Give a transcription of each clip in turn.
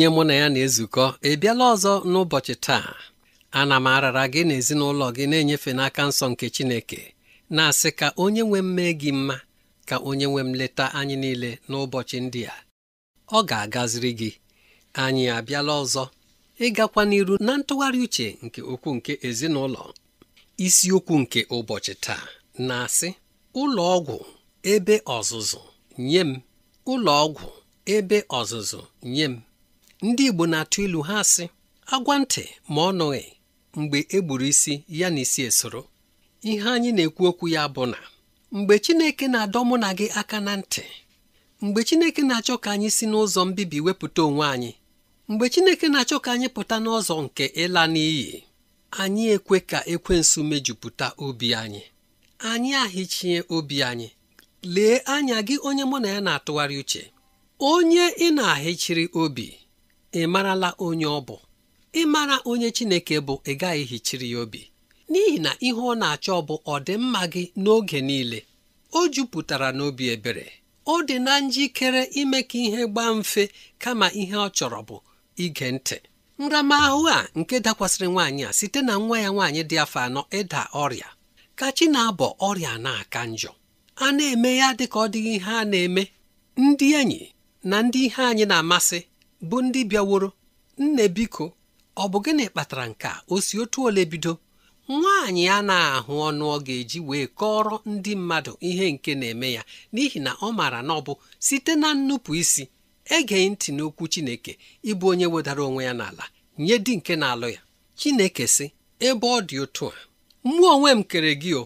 onye mụ na ya na-ezukọ ị ọzọ n'ụbọchị taa ana m arara gị na ezinụlọ gị na-enyefe n'aka nsọ nke Chineke na-asị ka onye nwe m gị mma ka onye nwe m leta anyị niile n'ụbọchị ndị a ọ ga-agaziri gị anyị abịala ọzọ ịgakwa n'iru na ntụgharị uche nke okwu nke ezinụlọ isiokwu nke ụbọchị taa na-asị ụlọ ọgwụ ebe ọzụzụ nye m ụlọ ọgwụ ebe ọzụzụ nye m ndị Igbo na-atụ ilu ha sị agwa ntị ma ọ nụghị mgbe e gburu isi ya na isi esoro ihe anyị na-ekwu okwu ya bụ na mgbe Chineke na-adọ mụ na gị aka na ntị mgbe Chineke na-achọ ka anyị si n'ụzọ mbibi wepụta onwe anyị mgbe Chineke na-achọ ka anyị pụta n'ụzọ nke ịla n'iyi anyị ekwe ka ekwensu mejupụta obi anyị anyị ahịchie obi anyị lee anya gị onye mụ na ya na-atụgharị uche onye ị na-ahịchiri obi ị marala onye ọ bụ ị mara onye Chineke bụ ị gaghị hichiri ya obi n'ihi na ihe ọ na-achọ ọ bụ ọdịmma gị n'oge niile o jupụtara n'obi ebere ọ dị na njikere ime ka ihe gbaa mfe kama ihe ọ chọrọ bụ ige ntị nramahụ a nke dakwasịrị nwaanyị a site na nwa ya nwaanyị dị afọ anọ ịda ọrịa ka chi na-abọ ọrịa na-aka njọ a na-eme ya dị ka ọ dịghị ihe a na-eme ndị enyi na ndị ihe anyị na-amasị bụ ndị bịaworo nne biko ọ bụ gịnị kpatara nke a o si otu ole bido nwaanyị a na-ahụ ọnụ ọ ga-eji wee kọrọ ndị mmadụ ihe nke na-eme ya n'ihi na ọ maara na ọ bụ site na nnupụ isi ege ntị n'okwu Chineke ịbụ onye wedara onwe ya n'ala nye di nke na-alụ ya Chineke sị ebe ọ dị otu a mụ onwe m kere gị o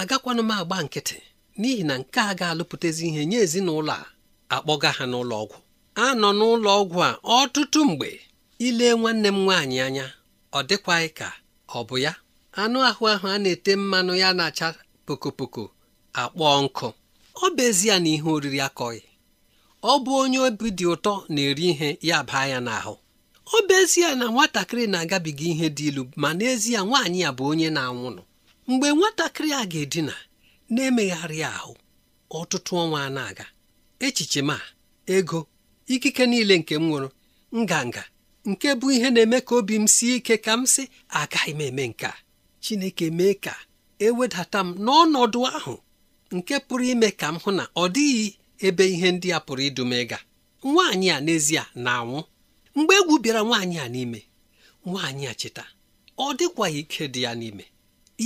agakwanụ m agba nkịtị n'ihi na nke a ga-alụpụtazi ihe nye ezinụlọ a akpọga ha n'ụlọ ọgwụ a nọ n'ụlọ ọgwụ a ọtụtụ mgbe ile nwanne m nwaanyị anya ọ dịkwaghị ka ọ bụ ya anụ ahụ ahụ a na-ete mmanụ ya na-acha pokopoko akpọọ nkụ ọ bụ ezie na ihe oriri akọghị ọ bụ onye obi dị ụtọ na-eri ihe ya baa ya n'ahụ ọ bụ ezie na nwatakịrị na-agabiga ihe dị ilu ma n'ezie nwaanyị ya bụ onye na-anwụnụ mgbe nwatakịrị a ga-edina na-emegharị ahụ ọtụtụ ọnwa na-aga echiche ma ego ikike niile nke m nwụrụ nganga nke bụ ihe na-eme ka obi m sie ike ka m sị agaghị m eme nke a Chineke mee ka ewedata m n'ọnọdụ ahụ nke pụrụ ime ka m hụ na ọ dịghị ebe ihe ndị a pụrụ idu m ịga nwaanyị a n'ezie na-anwụ mgbe egwu bịara nwaanyị a n'ime nwaanyị a cheta ọ dịkwa ike dị ya n'ime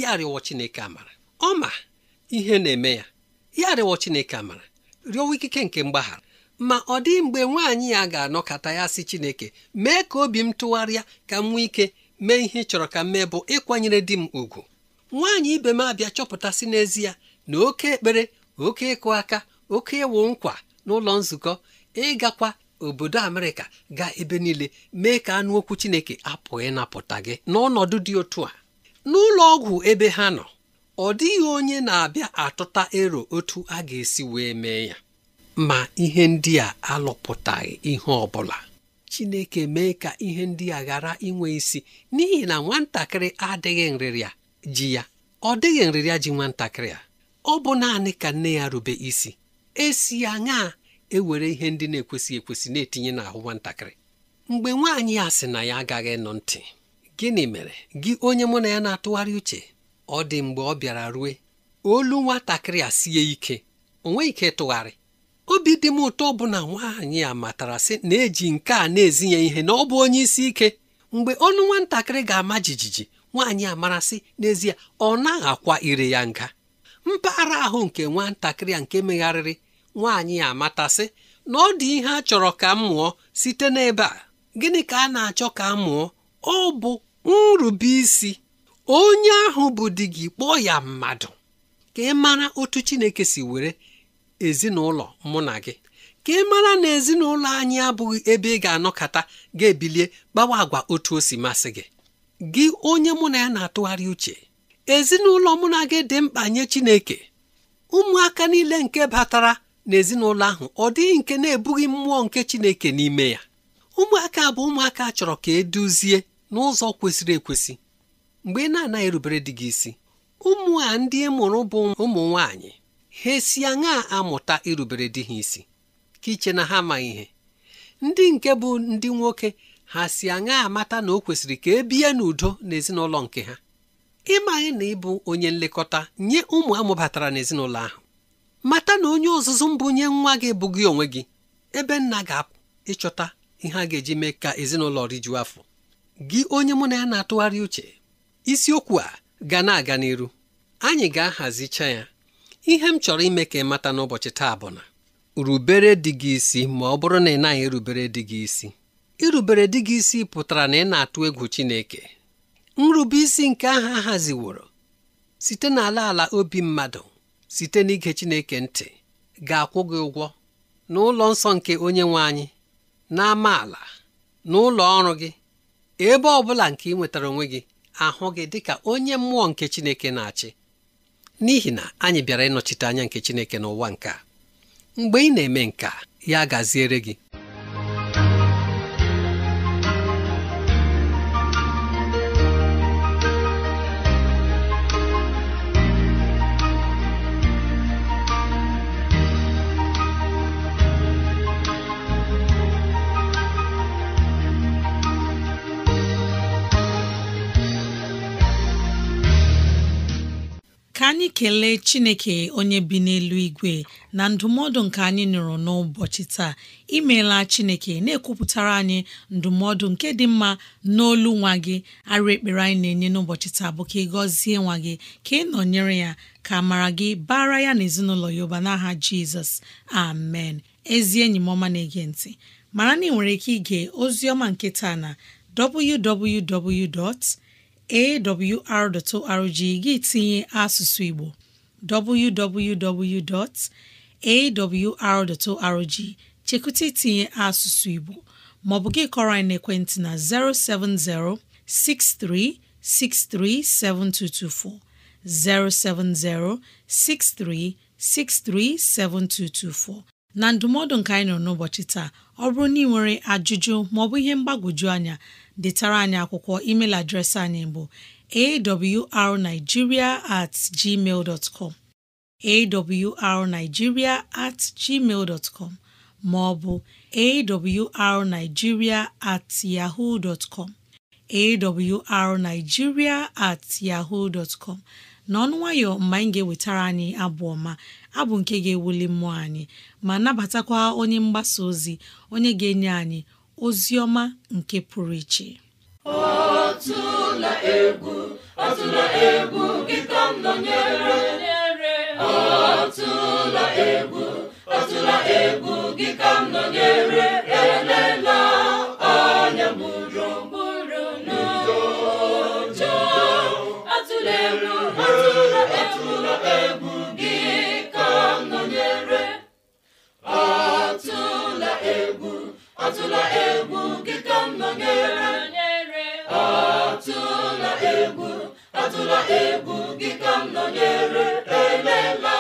ya rịọ Chineke amara ọ ma ihe na-eme ya ya rịọ Chineke amara rịọwa ikike nke mgbaghara ma ọ dị mgbe nwaanyị ya ga-anọkọta ya si Chineke mee ka obi m tụgharịa ka m nwee ike mee ihe chọrọ ka m mee bụ ịkwanyere di m ùgwù. nwaanyị ibe m abịa chọpụtasị n'ezie na oke ekpere oke ịkụ aka oke ịwụ nkwa n'ụlọ nzukọ ịgakwa obodo Amerịka gaa ebe niile mee ka anụ okwu Chineke apụghị ịnapụta gị n'ọnọdụ dị otu a n'ụlọ ọgwụ ebe ha nọ ọ dịghị onye na-abịa atụta ero otu a ga-esi wee mee ya ma ihe ndị a alụpụtaghị ihe ọ bụla Chineke mee ka ihe ndị a ghara inwe isi n'ihi na nwatakịrị adịghị nrịrịa ji ya ọ dịghị nrịrịa ji nwatakịrị a ọ bụ naanị ka nne ya rube isi esi ya ṅaa ewere ihe ndị na-ekwesị ekwesị na-etinye n'ahụ nwatakịrị mgbe nwaanyị a sị na ya agaghị nụ ntị gịnị mere gị onye mụ na ya na-atụgharị uche ọ dị mgbe ọ bịara rue olu nwatakịrị a sie ike o ike tụgharị obi dị m ụtọ bụ na nwaanyị a matara na-eji nke a na-ezi ya ihe na ọ bụ onye isi ike mgbe ọnụ nwatakịrị ga-ama jijiji nwaanyị amarasị n'ezie ọ naghị akwa ire ya nga mpaghara ahụ nke nwatakịrị a nke megharịrị nwaanyị amatasị na ọ dị ihe a chọrọ ka m mụọ site n'ebe a gịnị ka a na-achọ ka m mụọ ọ bụ nrubeisi onye ahụ bụ di gị kpọọ ya mmadụ ka ị mara otu Chineke si were ezinụlọ mụ na gị ka ị mara na ezinụlọ anyị abụghị ebe ị ga-anọkọta ga-ebilie gbawa agwa otu o si masị gị gị onye mụ na ya na-atụgharị uche ezinụlọ mụ na gị dị mkpa nye Chineke ụmụaka niile nke batara ezinụlọ ahụ ọ dịghị nke na-ebughị mmụọ nke Chineke n'ime ya ụmụaka bụ ụmụaka chọrọ ka eduzie n'ụzọ kwesịrị ekwesị mgbe ị na-anaghị erubere di gị isi ụmụ a ndị e mụrụ bụ ụmụ nwanyị ha esi aṅaa amụta irubere di ha isi ka iche na ha amaghị ihe ndị nke bụ ndị nwoke ha si aṅaa amata na o kwesịrị ka e bie n'udo n'ezinụlọ nke ha ịmaghị na ịbụ onye nlekọta nye ụmụ amụbatara n'ezinụlọ ahụ mata na onye ọzụzụ mbụ nye nwa gị bụ gị onwe gị ebe nna ga-apụ ịchọta ihe a ga-eji mee ka ezinụlọ rijuo afọ gị onye mụ na ya na-atụgharị uche isiokwu a ga na-aga n'iru anyị ga-ahazicha ya ihe m chọrọ ime ka ị mata n'ụbọchị taa bụ na rubere dị gị isi ma ọ bụrụ na ị naghị erubere dị gị isi irubere dị gị isi pụtara na ị na-atụ egwu Chineke nrube isi nke ahụ haziworo site n'ala ala obi mmadụ site n'ige Chineke ntị ga-akwụ gị ụgwọ n'ụlọ nsọ nke onye nwe anyị na-ama na n'ụlọ ọrụ gị ebe ọ bụla nke ị nwetara onwe gị ahụ gị dịka onye mmụọ nke Chineke na-achị n'ihi na anyị bịara ịnọchite anya nke Chineke n'ụwa nke mgbe ị na-eme nka ya gaziere gị anyị kelee chineke onye bi n'elu igwe na ndụmọdụ nke anyị nụrụ n'ụbọchị taa imeela chineke na-ekwupụtara anyị ndụmọdụ nke dị mma n'olu nwa gị arụ ekpere anyị na-enye n'ụbọchị taa bụ ka ị gọzie nwa gị ka ị nọnyere ya ka mara gị bara ya na ezinụlọ ya ụba n'aha jizọs amen ezi enyi m ọma na-ege ntị mara na ị nwere ike ige ozi ọma nke taa na www. awr.org gị tinye asụsụ Igbo www.awr.org chekụta itinye asụsụ Igbo maọbụ gị kọrọ anyị n'ekwentị na 070 6363 7224 070 6363 7224 na ndụmọdụ nke anyị nọ n'ụbọchị taa ọ bụrụ na ị nwere ajụjụ maọbụ ihe mgbagwoju anya detara anyị akwụkwọ email adreesị anyị bụ awrnigeria at gmail dot com awrnigeria at gmail dot com ma ọ bụ awrnigeria at yahoo dot com awrnigeria at yahoo com n'ọnụ nwayọ mgbe anyị ga-ewetara anyị abụ ọma abụ nke ga-ewuli mmụọ anyị ma nabatakwa onye mgbasa ozi onye ga-enye anyị ozi ọma nke pụrụ iche Ọtụla egwu atụla egwu gị ka m nọnyere atụla egwu atụla egwu gị ka m elela anya mụrụ mụrụ n'ụjọ atụla egwu atụla egwu atụla egwu gị ka m nọnyere elela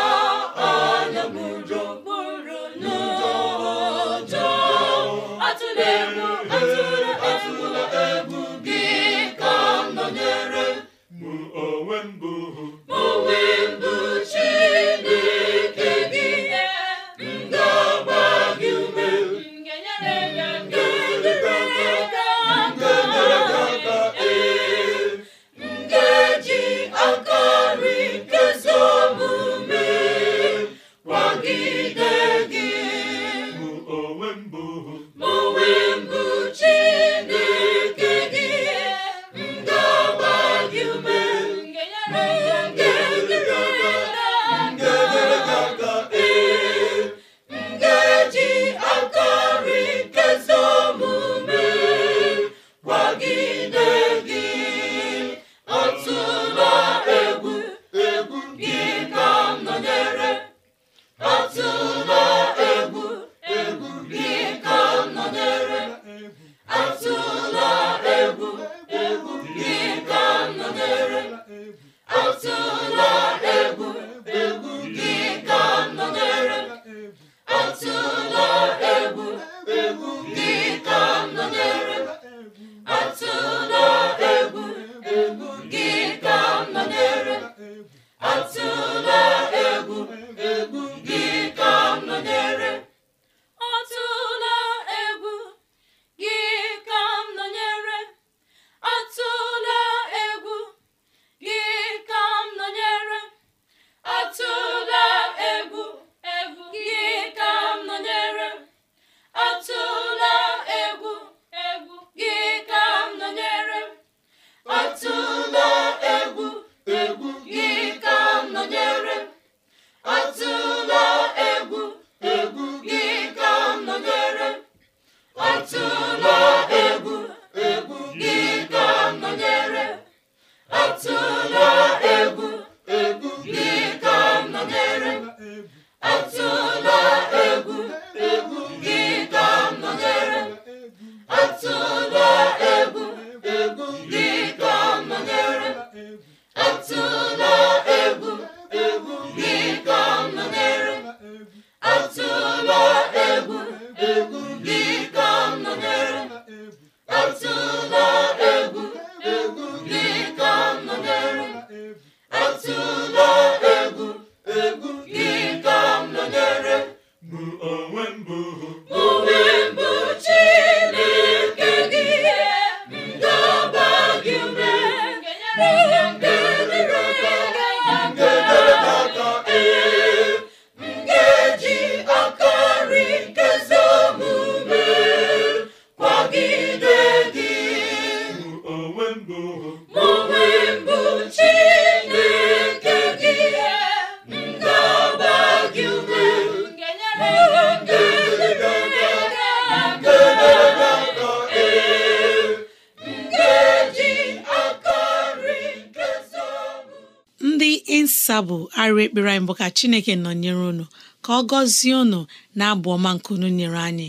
bụ arịa ekpere anyị bụ ka Chineke nọnyere unu ka ọ gọzie unu na-abụ ọma nke unu nyere anyị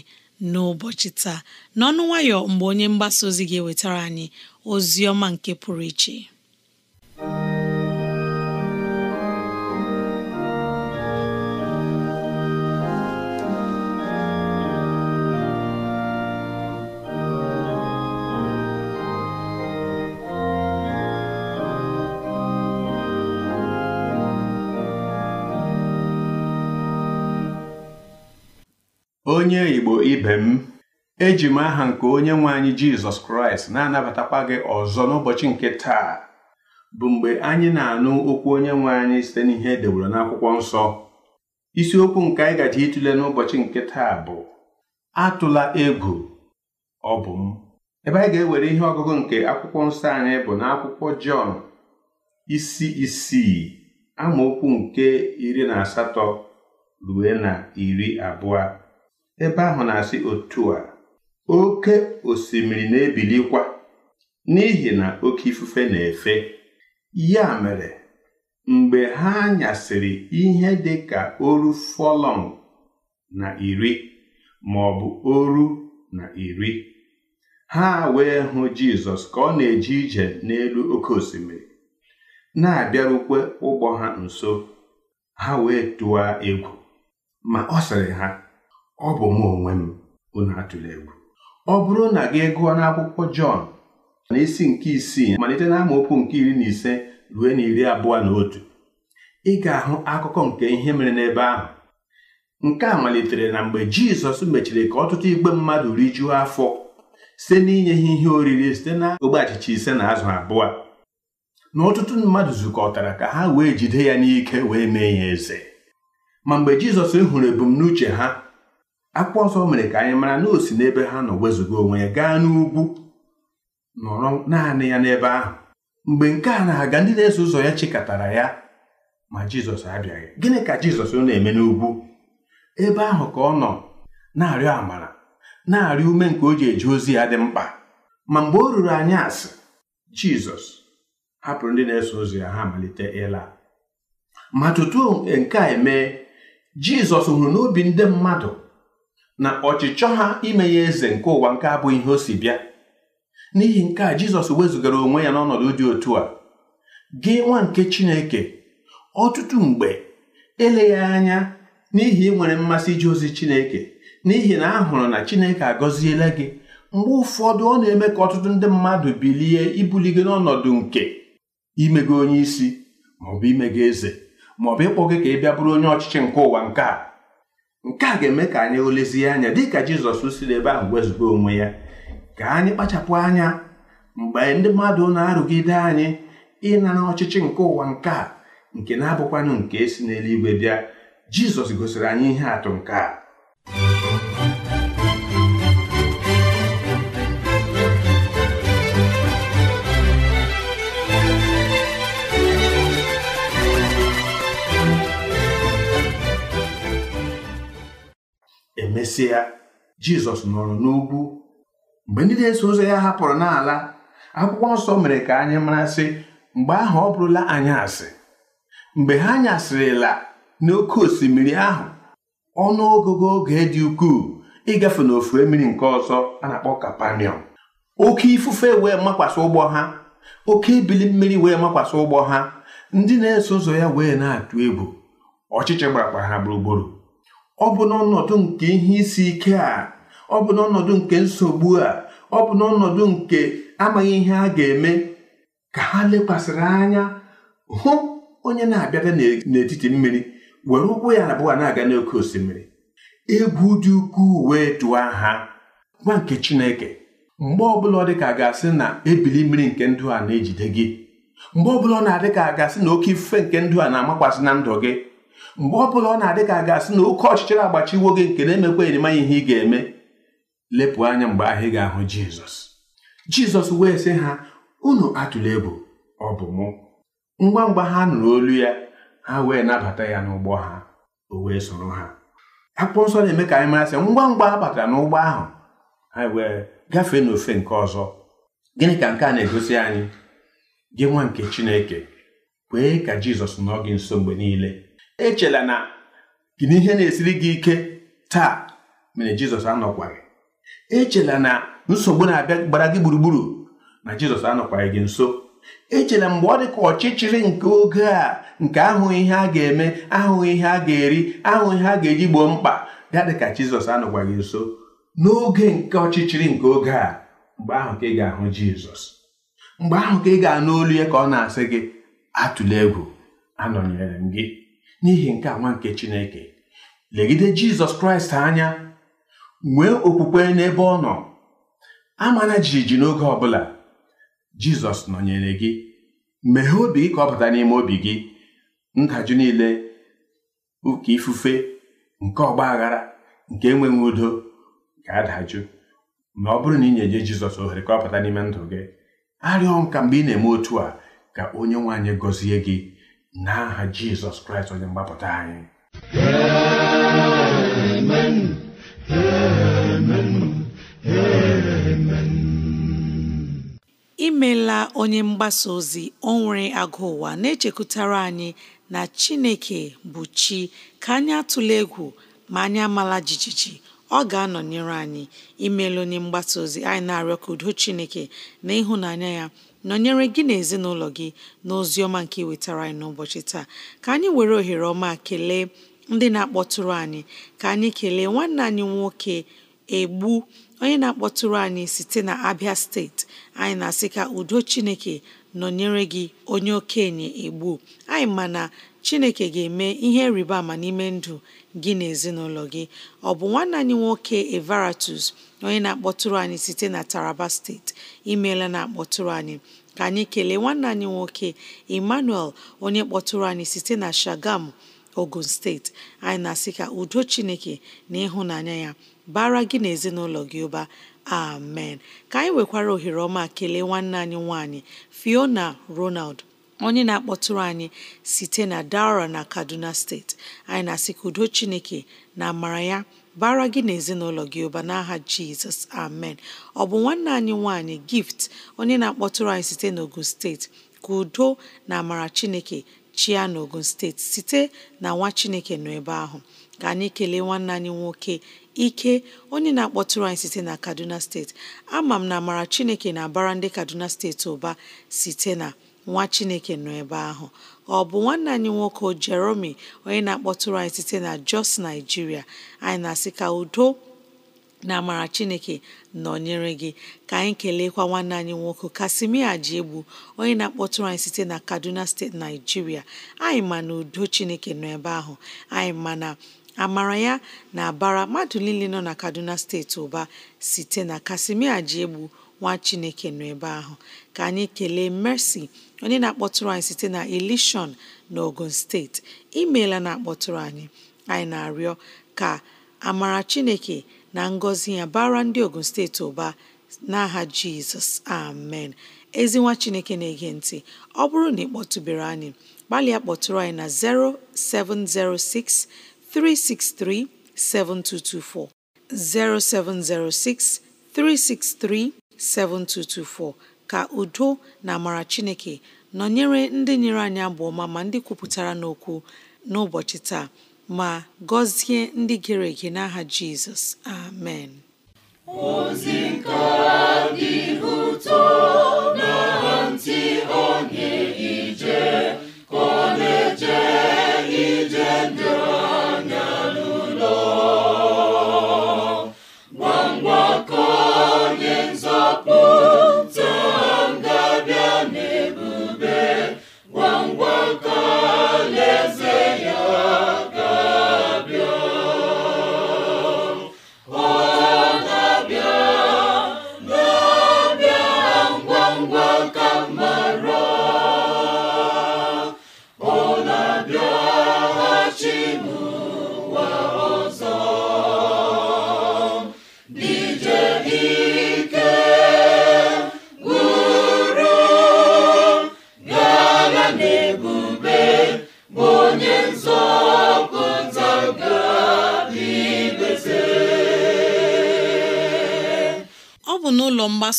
n'ụbọchị taa n'ọnụ nwayọ mgbe onye mgbasa ozi ga-ewetara anyị ozi ọma nke pụrụ iche onye igbo ibe m eji m aha nke onye nwe anyị jizọs kraịst na-anabatakwa gị ọzọ n'ụbọchị nke taa bụ mgbe anyị na-anụ okwu onye nwe anyị site n'ihe edewere n'akwụkwọ nsọ isiokwu nke anyị gaji ịtụle n'ụbọchị nke taa bụ atụla ego ọ bụ m ebe anyị ga-ewere ihe ọgụgụ nke akwụkwọ nsọ anyị bụ n'akwụkwọ jọn isi isii amaokwu nke iri na asatọ rue na iri abụọ ebe ahụ na-asị otu a oke osimiri na-ebilikwa n'ihi na oke ifufe na-efe ya mere mgbe ha nyasịrị ihe dị ka oru fọlọn na iri ma ọ bụ oru na iri ha wee hụ Jizọs ka ọ na eji ije n'elu oke osimiri na-abịarukwe ụgbọ ha nso ha wee tụọ egwu ma ọ sịrị ha ọ bụ mụ onwe m unu atụrụ egwu ọ bụrụ na gị gụọ n'akwụkwọ Jọn na isi nke isii malite na amaokwu nke iri na ise ruo na iri abụọ na otu ị ga-ahụ akụkọ nke ihe mere n'ebe ahụ nke a malitere na mgbe Jizọs mechiri ka ọtụtụ igbe mmadụ rijuo afọ site n'inye ha ihe oriri site na ogbe achịcha ise na azụ abụọ na ọtụtụ mmadụ zukọtara ka ha wee jide ya n'ike wee mee ya eze ma mgbe Jizọs hụrụ ebumnuche ha akwụkwọ nsọ mere ka anyị mara na o si n'ebe ha nọ wezụga onwe ya gaa n'ugwu nọrọ naanị ya n'ebe ahụ mgbe nke a na-aga ndị na-eso ụzọ ya chịkọtara ya ma jizọs abịaghị gịnị ka jizọs ọ na-eme n'ugwu ebe ahụ ka ọ nọ na-arịọ amara na-arịọ ume nke o ji eji ozi ya dị mkpa ma mgbe o ruru anya asị jizọs hapụrụ ndị na-eso ụzọ ya ha malite ịla ma tutu nke a emee jizọs hụrụ n'obi ndị mmadụ na ọchịchọ ha ime ya eze nke ụwa nke abụghị ihe o si bịa n'ihi nke a jizọs wezụgara onwe ya n'ọnọdụ dị otu a gị nwa nke chineke ọtụtụ mgbe eleghị anya n'ihi nwere mmasị ije ozi chineke n'ihi na ahụrụ hụrụ na chineke agọziela gị mgbe ụfọdụ ọ na-eme ka ọtụtụ ndị mmadụ bilie ibuli gị n'ọnọdụ nke imego onye isi maọbụ imego eze maọbụ ịkpọ gị ka ị bịa bụrụ onye ọchịchị nke ụwa nke a nke a ga-eme ka anyị olezie anya dị ka jizọs siri ebe ahụ wezụga onwe ya ka anyị kpachapụ anya mgbe ndị mmadụ na-arụgide anyị ịnara ọchịchị nke ụwa nke a nke na-abụkwanụ nke si n'eluigwe bịa jizọs gosiri anyị ihe atụ nke a emesịa jizọs nọrọ n'ugwu mgbe ndị na-eso ụzọ ya hapụrụ n'ala akwụkwọ nsọ mere ka anyị marasị mgbe ahụ ọ bụrụla asị mgbe ha nyasịrịla n'oké osimiri ahụ ọnụ ọgụgụ oge dị ukwuu ịgafe n'ofu mmiri nke ọzọ a na-akpọ kapaniọm oke ifufe wee makwasị ụgbọ ha oke ibili mmiri wee makwasị ụgbọ ha ndị na-eso ụzọ ya wee na-atụ egwu ọchịchị gbarakwa ha gburugburu ọ bụ n'ọnọdụ nke ihe isi ike a ọ bụ n'ọnọdụ nke nsogbu a ọ bụ n'ọnọdụ nke amaghị ihe a ga-eme ka ha lekwasịrị anya hụ onye na-abịada n'etiti mmiri were ụkwụ ya abụọ na-aga n'oke osimiri egwu dị ukwuu wee tụọ ha nwa nke Chineke mgbe ọbụla ọ dị ka a ga-asị na ebili mmiri nke ndụ a na-ejide gị mgbe ọbụla ọ na-adị ka a ga-asị na oke ifufe nke ndụ a na-amakwasị na ndụ gị mgbe ọ bụla ọ na-adị ka a ga-asị na oke ọchịchịrị agbachiwo gị nke na-emekwa enyemanya ihe ị ga-eme lepụ anya mgbe ahụ ị ga-ahụ jizọs jizọs wee sị ha unu atụla egwu ọ bụ mụ ngwa ngwa ha nụrụ olu ya ha wee nabata ya n'ụgbọ ha o wee soro ha akwụkwọ nsọ na-eme ka anyị mara sị ngwa ngwa ha batara n'ụgbọ ahụ ha wee gafee n'ofe nke ọzọ gịnị ka nke a na-egosi anyị gị nwa nke chineke kwee ka jizọs nọ gị nso mgbe niile echela na gị na ihe na-esiri gị ike taa mere jizọs gị? echela na nsogbu na-abịa gbara gị gburugburu na jizọs anọkwaghị gị nso echela mgbe ọ dị ka ọchịchịrị nke oge a nke ahụghị ihe a ga-eme ahụghị ihe a ga-eri ahụghị ihe a ga-eji gboo mkpa ya dị ka jizọs gị nso n'oge nke ọchịchịrị nke oge a mgbe ahụ ka ị ga-ahụ jizọs mgbe ahụ ka ị ga-anụ olu ya ka ọ na-asị gị atụla egwu anọnyere m gị n'ihi nke nwa nke chineke legide jizọs kraịst anya nwee okwukwe n'ebe ọ nọ amana jijiji n'oge ọbụla jizọs nọnyere gị meghee obi gị ka ọ bata n'ime obi gị ndajụ niile ụka ifufe nke ọgba aghara nke enweghị udo ga-adajụ ma ọ bụrụ na ị na jizọs ohere ka ọ bata n'ime ndụ gị arịọ ọnka mgbe ị na-eme otu a ka onye nwaanyị gọzie gị n'aha jizọs kraịst onye mgbapụta anyị imela onye mgbasa ozi onwere nwere agụ ụwa na-echekwutara anyị na chineke bụ chi ka anyị atụla egwu ma anyị amala jijiji ọ ga-anọnyere anyị imela onye mgbasa ozi anyị na-arịọ ka udo chineke na ịhụnanya ya nọnyere gị na ezinụlọ gị na ọma nke iwetara anyị n'ụbọchị taa ka anyị were ohere ọma kelee ndị na-akpọtụrụ anyị ka anyị kelee nwanne anyị nwoke egbu onye na-akpọtụrụ anyị site na Abia steeti anyị na-asị ka udo Chineke nọnyere gị onye okenye egbu anyị ma Chineke ga-eme ihe rịba ama n'ime ndụ gị na ezinụlọ gị ọ bụ nwanne anyị nwoke Evaratus onye na-akpọtụrụ anyị site na Taraba steeti imeela na-akpọtụrụ anyị ka anyị kelee nwanne anyị nwoke Emmanuel onye kpọtụrụ anyị site na Shagam Ogun steeti anyị na-asị ka udo Chineke na ịhụnanya ya bara gị na ezinụlọ gị ụba amen ka anyị nwekwara ohere ọma kelee nwanne anyị nwanyị Fiona Ronald onye na-akpọtụrụ anyị site na Daura na Kaduna steeti anyị na-asị ka udo Chineke na amara ya bara gị na ezinụlọ gị ụba n'aha Jizọs amen ọ bụ nwanne anyị nwanyị gift onye na-akpọtụrụ anyị site n'Ogun steeti ka udo na amara Chineke chia n'Ogun steeti site na nwa Chineke nọ ebe ahụ ka anyị kelee nwanne anyị nwoke ike onye na-akpọtụrụ anyị site na Kaduna steeti ama m na amara Chineke na-abara ndị Kaduna steeti ụba site na nwa Chineke nọ ebe ahụ ọ bụ nwanne anyị nwoke Jeremy onye na-akpọtụrụ anyị site na Jos Nigeria anyị na-asị ka udo na amara Chineke nọnyere gị ka anyị keleekwa nwanne anyị nwoke Kasimia egbu onye na-akpọtụrụ anyị site na Kaduna steeti Naijiria anyị ma na udo Chineke nọ ebe ahụ anyị ma na amara ya na-abara mmadụ niile nọ na Kaduna steeti ụba site na Kasimia egbu nwa chineke nọ ebe ahụ ka anyị kelee mercy onye na-akpọtụrụ anyị site na elishon na ogun steeti imeela na-akpọtụrụ anyị anyị na-arịọ ka amara chineke na ngọzi ya bara ndị ogun steeti ụba n'aha jizọs amen ezinwa chineke na-ege ntị ọ bụrụ na ị kpọtụbere anyị gbalịa kpọtụrụ anyị na 0706 363 7224 0706 363 7224 ka udo na amara Chineke nọnyere ndị nyere anyị abụ ọma ma ndị kwupụtara n'okwu n'ụbọchị taa ma gọzie ndị gere ege n'aha Jizọs amen ozi nke dị ụtọ na